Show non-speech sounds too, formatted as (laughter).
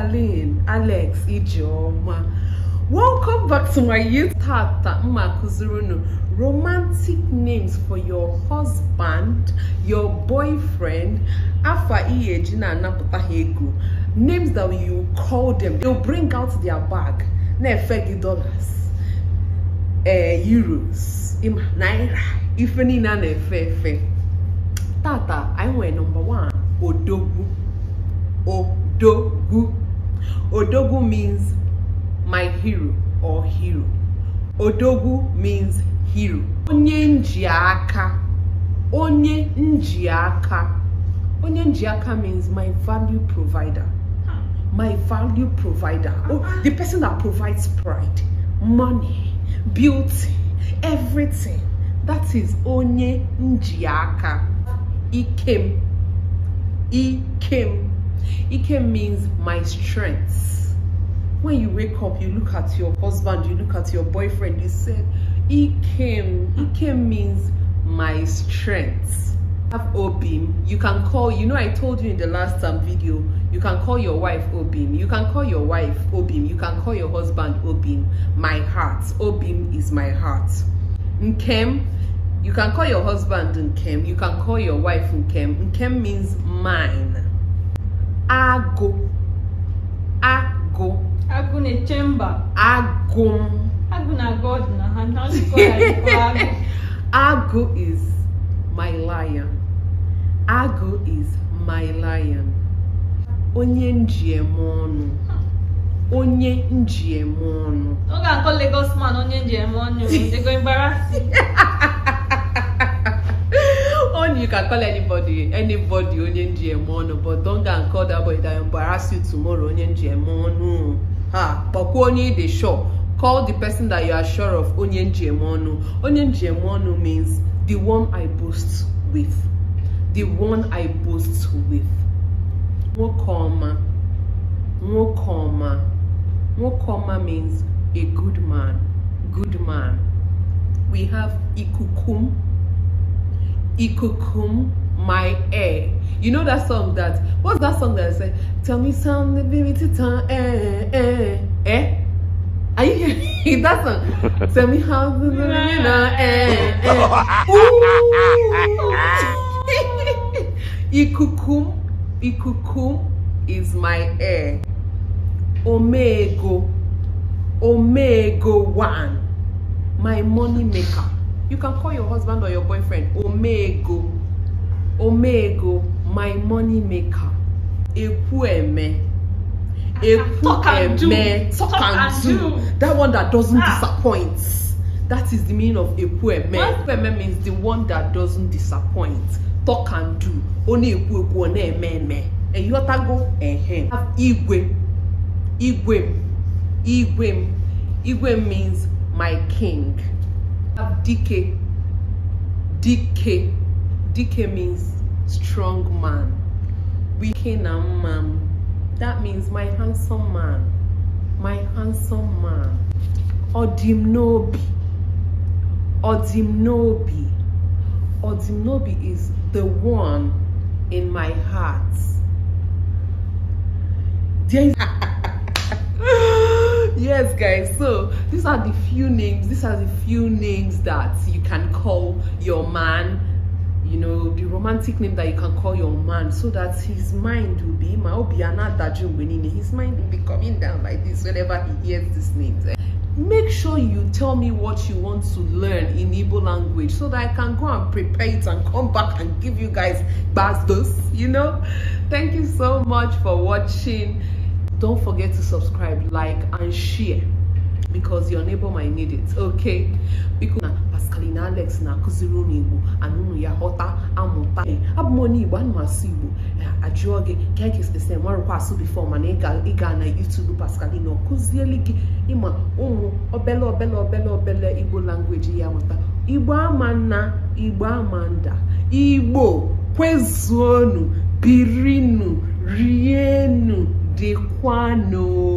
Charlene, Alex, Ijeoma. Welcome back to my YouTube. Tata Makuzurunu. Romantic names for your husband, your boyfriend, Afa Iyejina Naputahegu. Names that you call them. They'll bring out their bag. Nefegi dollars, eh, euros, naira, ifeni na nefefe. Tata, I were number one. Odogu, Odogu. Odogu means my hero or hero. Odogu means hero. Onye nji aka. Onye aka. Onye aka means my value provider. My value provider. Oh, uh-huh. the person that provides pride, money, beauty, everything. That is onye nji aka. Ikem. Ikem. Ike means my strength. When you wake up, you look at your husband, you look at your boyfriend, you say, Ike, Ike means my strength. Have Obim. You can call, you know, I told you in the last um, video, you can call your wife Obim. You can call your wife Obim. You can call your husband Obim. My heart. Obim is my heart. Nkem. You can call your husband Nkem. You can call your wife Nkem. Nkem means mine. agụ agụ agụ na-eche agụ agụ na god na ha (laughs) agụ is my lion agụ is my lion onye njem ọnụ onye njem ọnụ ọ ga-akọ Lagos man onye eme ọnụ ego embarrassing (laughs) can call anybody anybody onye ngm ọnụ but don't go and call that boy that embarrass you tomorrow onye ngm ọnụ ha kpọkwuo onye ị dey sure call the person that you are sure of onye ngm ọnụ onye ngm ọnụ means the one i boast with the one i boast with nwoke ọma nwoke ọma nwoke ọma means a good man good man we have ikukum ikukum my air. You know that song that what's that song that I said? Tell me something, baby, titan, eh, eh, eh, eh. Are you hearing (laughs) that song? (laughs) Tell me how the (laughs) banana. eh, eh. eh. Ikukum, ikukum is my air. Omega, Omega one, my money maker. You can call your husband or your boyfriend Omego. Omego, my money maker. Ekueme. Ah, ah, Ekueme. Talk and do. That one that doesn't ah. disappoint. That is the meaning of Ekueme. Ekueme means the one that doesn't disappoint. Talk and do. Oni Ekueku, only Ememe. And you have to go. Igwe. Igwe. Igwe. Igwe means my king. have DK. DK. DK means strong man. We Kenam man. That means my handsome man. My handsome man. Odimnobi. Odimnobi. Odimnobi is the one in my heart. There is yes guys so these are the few names these are the few names that you can call your man you know the romantic name that you can call your man so that his mind will be his mind will be coming down like this whenever he hears these names make sure you tell me what you want to learn in Igbo language so that I can go and prepare it and come back and give you guys bastos, you know? Thank you so much for watching. don't forget to subscribe like and share because your neighbor might need it okay biko na alex na-akụziri ụmụ igbo anụnụ ya ghọta amụta eh, abụ m onye igbo anụ asụ igbo eh, ajụọ gị ka anyị kesịsị nwarụkwa asụ bifọ mana ịga na youtube pascalin ọ kụzieli gị ịma ụmụ obele obele obele obele igbo langweji ya mụta igbo ama nna igbo ama nda igbo kwezuonu birinu rienu the quano.